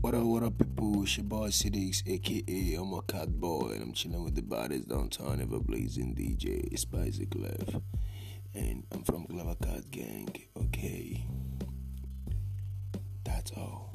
What up, what up, people? It's your boy Sidix, aka I'm a cat boy, and I'm chilling with the baddest downtown ever blazing DJ Spicy Clef. And I'm from Clever Cat Gang, okay? That's all.